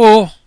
o